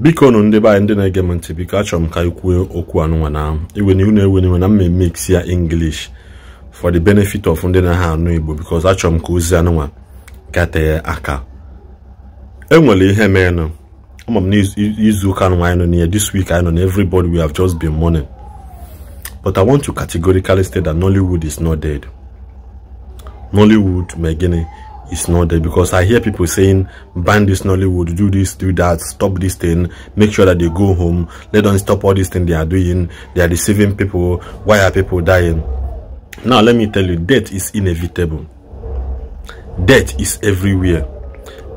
biko nụ ndị be anyị ndị na-ege m ntị biko achọrọ m ka anyị kwuo okwu anụnwa na iwene unu na mme mix ya English for the benefit of ndị na ha anụ Igbo because achọrọ m ka ozi anụnwa gatee aka enwere ihe meenụ ama m na izu ụka anụnwa anyị nọ n'ihe this week anyị nọ na we have just been mourning but I want to categorically state that Nollywood is not dead Nollywood ma gịnị is not there because i hear people saying ban this nollywood do this do that stop this thing make sure that they go home let them stop all this thing they are doing they are deceiving people why are people dying now let me tell you death is inevitable death is everywhere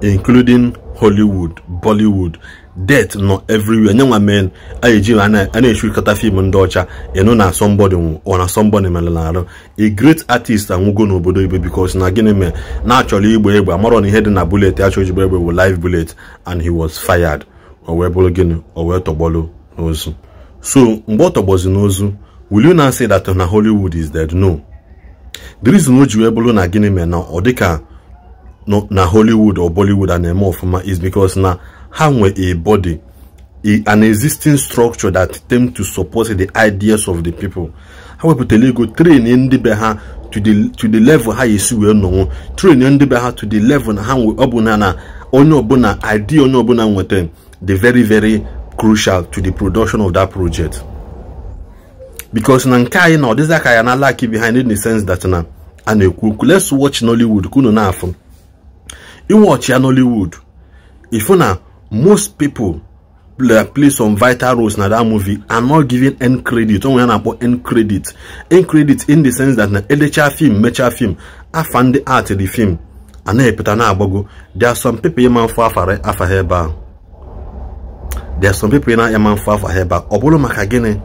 including hollywood bollywood det nọ everywhere nye men a eji a na-echirikọta fim ndị ọcha ịnụ na somebody ọ na somebody mere na arụ a great artist anwụgo n'obodo igbo because na gịnị mere na-achọrọ igba egbe amarọ na ihe dị na bullet achọ ijigba egbe wụ live bullet and he was fired o wee bụrụ gịnị o wee tọgbọlụ n'ozu so mgbe ọ tọgbọzi n'ozu will you now say that na Hollywood is dead no the reason o ji wee bụrụ na gịnị mere na ọ dịka na Hollywood or Bollywood a na-eme ọfụma is because na ha nwe a body a, an existing structure that attempt to support the ideas of the people ha wepụtara ego train ndị be ha to the to the level ha esi wee nọnwụ train ndị be ha to the level na ha ọbụla na onye ọbụla idea onye ọbụla nweta the very very crucial to the production of that project because na nke anyị na ọdịza ka ya na laki behind in the sense that na a na-ekwu okwu let's watch Nollywood ka unu na-afụ iwọchi ya Nollywood ifu na most people play, play some vital roles na that movie and not giving end credit onwe ya na-akpọ end credit end credit in the sense that na elecha film mecha film afa ndị art the film and na-epụta na-agbago there are some people ma mfụ afara afa ha ebe there are some people na-anya afa ha ebe ahụ maka gịnị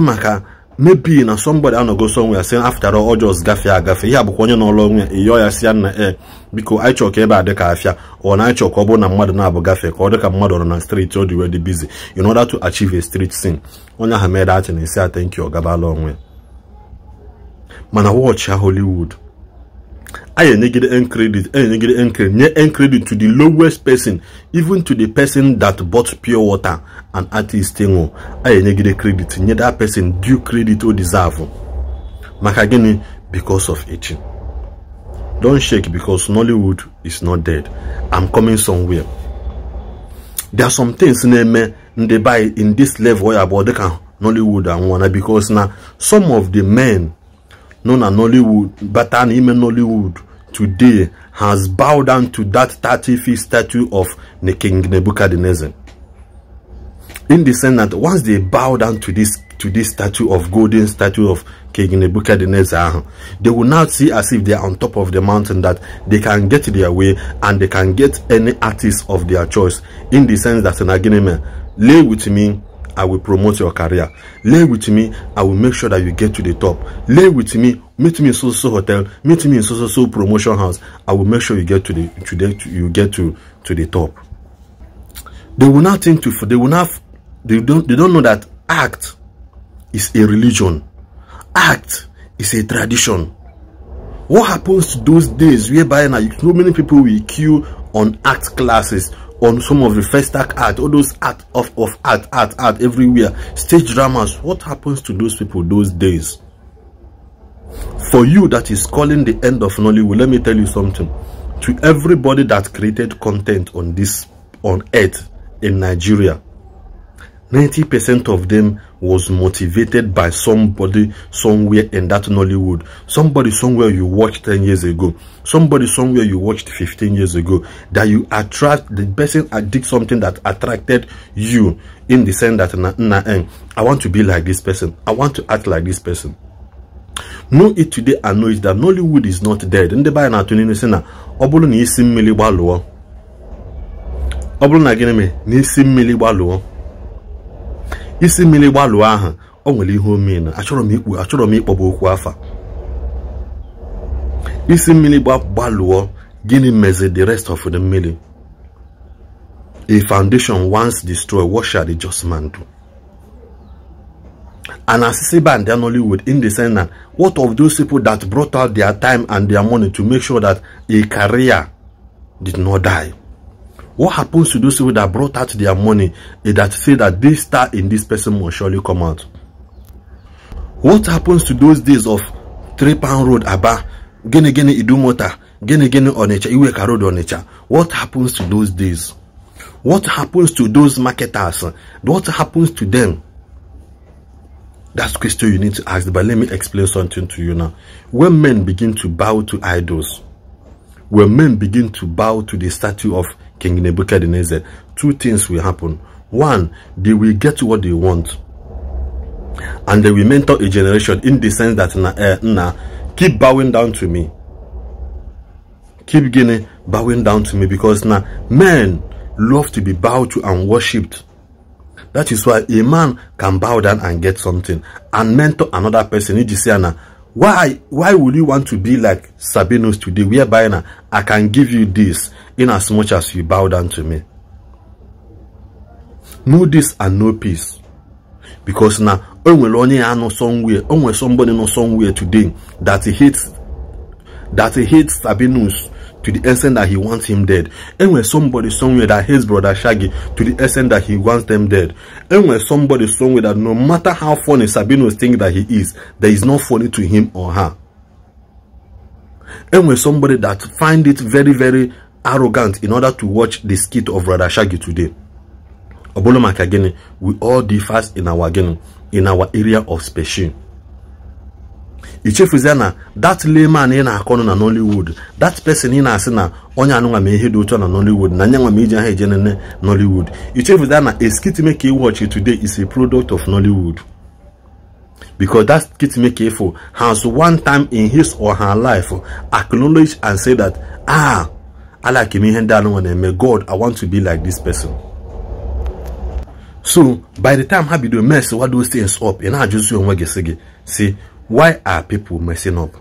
maka maybe na somebody anọgo somewhere saying after all just gafee agafe ihe abụkwa onye n'ọlụ onwe ya ịyọ ya si ya na e biko anyị chọọ ka ebe a dị ka afịa ọ na anyị ka ọ bụrụ na mmadụ na-abụ gafee ka ọ dị ka mmadụ nọ na street ọ dị wee dị busy in order to achieve a street scene onye ahụ mere datin esi isi ọ gabala onwe ya mana wọchị Hollywood I negate earn credit, I negate earn credit, earn credit to the lowest person, even to the person that bought pure water and artist thing. Oh. I negate credit, nye that person due credit or deserve. Oh. Maka because of it. Don't shake because Nollywood is not dead. I'm coming somewhere. There are some things in the ndị buy in this level ya the dịka Nollywood one. because now some of the men known as Nollywood an even Nollywood today has bowed down to that 30 feet statue of the King Nebuchadnezzar. In the sense that once they bow down to this to this statue of golden statue of King Nebuchadnezzar, they will now see as if they are on top of the mountain that they can get their way and they can get any artist of their choice. In the sense that an agreement, lay with me, I will promote your career. Lay with me, I will make sure that you get to the top. Lay with me, meet me in so so hotel, meet me in so so so promotion house. I will make sure you get to the to the to, you get to to the top. They will not think to they will not they don't they don't know that act is a religion. Act is a tradition. What happens to those days whereby now so many people will queue on act classes on some of the first act art all those art of, of art art art everywhere stage dramas what happens to those people those days for you that is calling the end of nollywood let me tell you something to everybody that created content on this on earth in nigeria 90% of them was motivated by somebody somewhere in that Nollywood. Somebody somewhere you watched 10 years ago. Somebody somewhere you watched 15 years ago. That you attract, the person did something that attracted you in the sense that, na, na, eh, I want to be like this person. I want to act like this person. Know it today and know it that Nollywood is not dead. Ndị the na-atụ n'inu na ọ bụrụ na isi mmiri mili Ọ bụrụ na isi mmiri gbalụọ ahụ o nwere ihe omena achọrọ m ikpu achọrọ m ịkpọgbu okwu afa isi mmiri gbalụọ gịnị mezi the rest of the mmiri a foundation once destroyed what shall the just man do and assisi band only Hollywood in the sense that what of those people that brought out their time and their money to make sure that a career did not die What happens to those people that brought out their money and that say that this star in this person will surely come out? What happens to those days of three pound road abba gene gene idumota, gene gene onecha, iwe road onecha? What happens to those days? What happens to those marketers? What happens to them? That's the question you need to ask. But let me explain something to you now. When men begin to bow to idols, when men begin to bow to the statue of King Nebuchadnezzar, two things will happen. One, they will get what they want. And they will mentor a generation in the sense that, na, eh, keep bowing down to me. Keep getting bowing down to me because now men love to be bowed to and worshipped. That is why a man can bow down and get something and mentor another person. You see, now, why why would you want to be like Sabinos today whereby now I can give you this in as much as you bow down to me know this and no peace because now only nwere onye ya somewhere only somebody nọ somewhere today that he hates that he hates Sabinos to the extent that he wants him dead. And when somebody somewhere that hates brother Shaggy to the extent that he wants them dead. And when somebody somewhere that no matter how funny Sabino's thinking that he is, there is no funny to him or her. And when somebody that find it very, very arrogant in order to watch the skit of brother Shaggy today. Obolo Makagene, we all differ in our, in our area of special. ichefuzie na that layman ị na-akọnụ na nollywood that person ị na-asị na onye anụnwa ma ihe dị ụtọ na nollywood na nyanwa ma iji aha eje nene nollywood ichefuzie na a skit make e watch today is a product of nollywood because that skit make for has one time in his or her life acknowledge and say that ah alake m ihe ndị anụnwa na-eme god i want to be like this person so by the time ha bido mess what those things up ị na-ajụzi onwe gị si gị si Why are people messing up?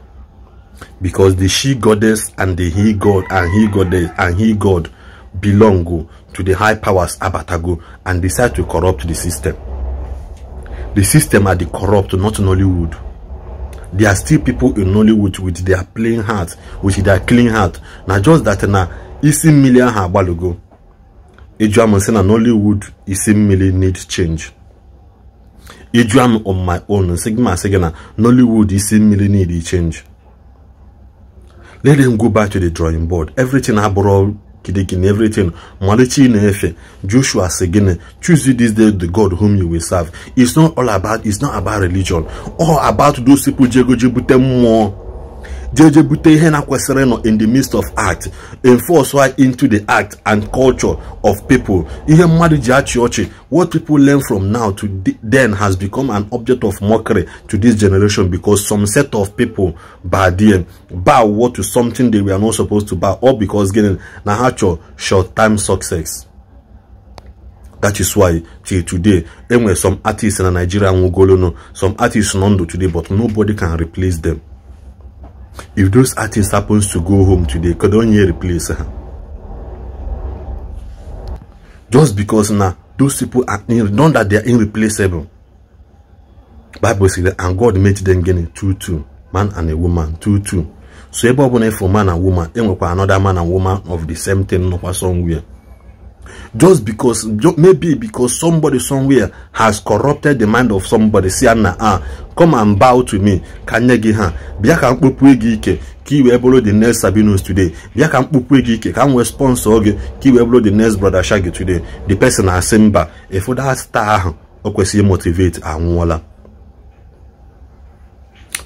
Because the she goddess and the he god and he goddess and he god belong to the high powers abatago and decide to corrupt the system. The system are the corrupt, not Nollywood. There are still people in Nollywood with their plain heart, with their clean heart. Now just that na a million ha agbalogo. Ejuamun say Nollywood isi million need change. eju am on my own nsị gị nollywood gị see nollywood isi mmiri change let them go back to the drawing board everything abụrụ kidikin everything malichi na-efe joshua sị choose this day the god whom you will serve it's not all about it's not about religion or about those people jego ji bute jeje bute ihe na in the midst of art enforce why into the art and culture of people ihe madu ji what people learn from now to then has become an object of mockery to this generation because some set of people by them bow to something they were not supposed to bow or because getting na short time success that is why till today enwere some artists in nigeria nwụgolonu some artists nando today but nobody can replace them if those artists happens to go home today could only replace her just because now those people are in, not that they are irreplaceable bible says that and god made them getting two two man and a woman two two so ebe ọbụla efu man and woman enwekwa another man and woman of the same thing nọkwa somewhere just because maybe because somebody somewhere has corrupted the mind of somebody say na ah come and bow to me ka nye gị ha bịa ka m kpopue gị ike ka i wee bụrụ the next Sabinus today bịa ka m kpopue gị ike ka m nwee sponsor gị ka i wee bụrụ the next brother Shaggy today the person asị mba efoda star ahụ o kwesịghị motivate anwụọla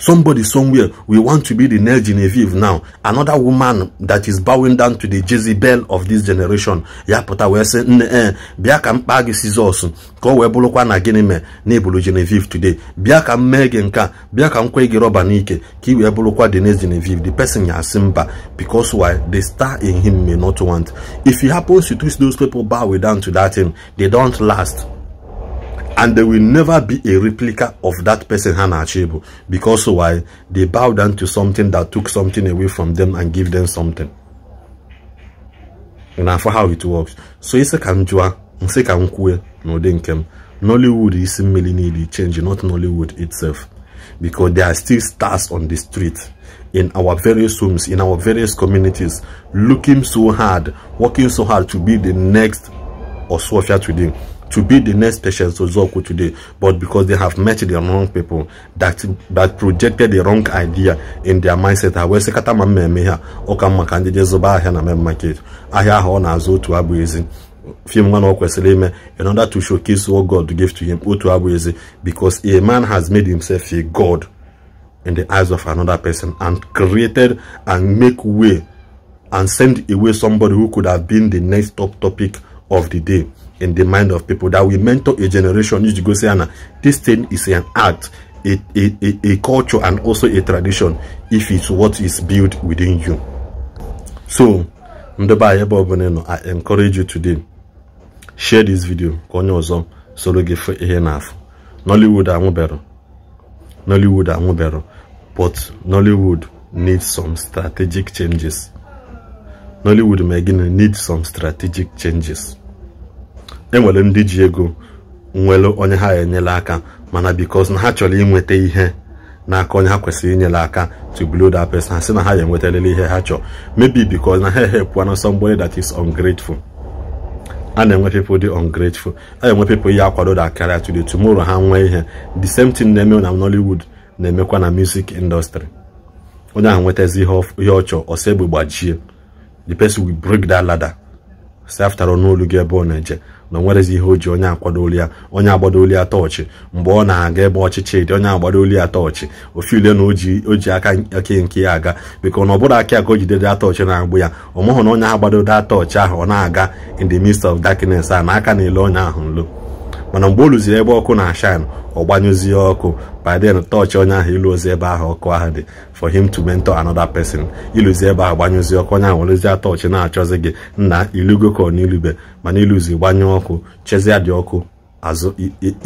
Somebody somewhere, we want to be the next Genevieve now. Another woman that is bowing down to the Jezebel of this generation. Ya pota we say, nne ee eh, bịa ka m kpaa gị na gịnị mee na Genevieve today. Bịa ka biakam mee gị nka bịa ka m gị rọba n'ike the next Genevieve. The person ya Simba, because why the star in him may not want. If he happens to twist those people bow down to that thing, they don't last and there will never be a replica of that person Hannah Achibu because why they bow down to something that took something away from them and give them something and for how it works so it's a m jụa nsị ka m Nollywood is mmiri changing, not Nollywood itself because there are still stars on the street in our various homes in our various communities looking so hard working so hard to be the next Oswafia them to be the next patient to Zoku today, but because they have met the wrong people that that projected the wrong idea in their mindset. I will say kata mmemme ha ọka mma zuba ndị jezoba ahịa Aya main market ahịa ahụ ọ na-azụ otu abụ ezi few man or in order to showcase what God gave to him, because a man has made himself a God in the eyes of another person and created and make way and send away somebody who could have been the next top topic of the day in the mind of people that we mentor a generation need to go say Anna, this thing is an art a, a, a, a culture and also a tradition if it's what is built within you so nọ i encourage you today share this video ka onye ọzọ soro gị nollywood nollywood but nollywood needs some strategic changes nollywood ma needs some strategic changes enwere ndị ji ego nwere onye ha enyela aka mana because na ha chọrọ inweta ihe n'aka onye ha kwesịrị inyela aka to blow that person ha na ha ya enwetalele ihe ha chọrọ maybe because na ha help na somebody that is ungrateful a na-enwe people dị ungrateful a na-enwe people ihe akwado da karịa today tomorrow ha nwee ihe the same thing na-eme na Nollywood na-emekwa na music industry onye ahụ nwetazi ihe ọ chọrọ ọsọ egbe gbajie the person will break that ladder say after n'olu gị ebe ọ na-eje na nwerezi ihe o ji onye akwadoli ya onye agbadoli ya tọọchị mgbe ọ na-aga ebe ọchịchị dị onye agbadoli ya tọọchị ule na o ji aka eke nke ya aga beka na ọ bụrụ aka ka o jidede tọọchị na-agbụ ya ọ na onye agbadode tọọchị ahụ ọ na-aga in the midst of darkness a na aka na-ele onye ahụ nlo mana mgbe o ebe ọkụ na-ashan ọ gbanyụzie ọkụ baden tọọchị onye ahụ ilu ozi ebe ahụ ọkụ ahụ dị for him to mentor another person iluzi ebe ahụ gbanyụzi ọkụ onye ahụ werezie tọọchị na-achọzi gị nna ilugo ka ọ n'ilube mana iluzi gbanyụ ọkụ chezie dị ọkụ azụ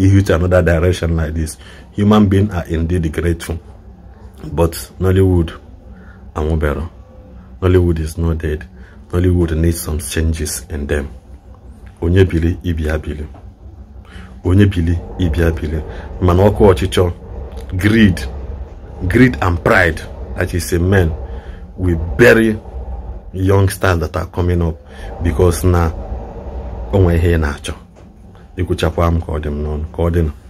ihu another direction like this human being are indeed grateful but nollywood anwụbero nollywood is not dead nollywood needs some changes in them onye biri ibi ya biri onye bili ịbịa bili mana ọkụ ọchịchọ greed greed and pride that is a men we bury stars that are coming up because na onwe ihe na-achọ ikwuchakwa m ka ọ dị ka ọ dị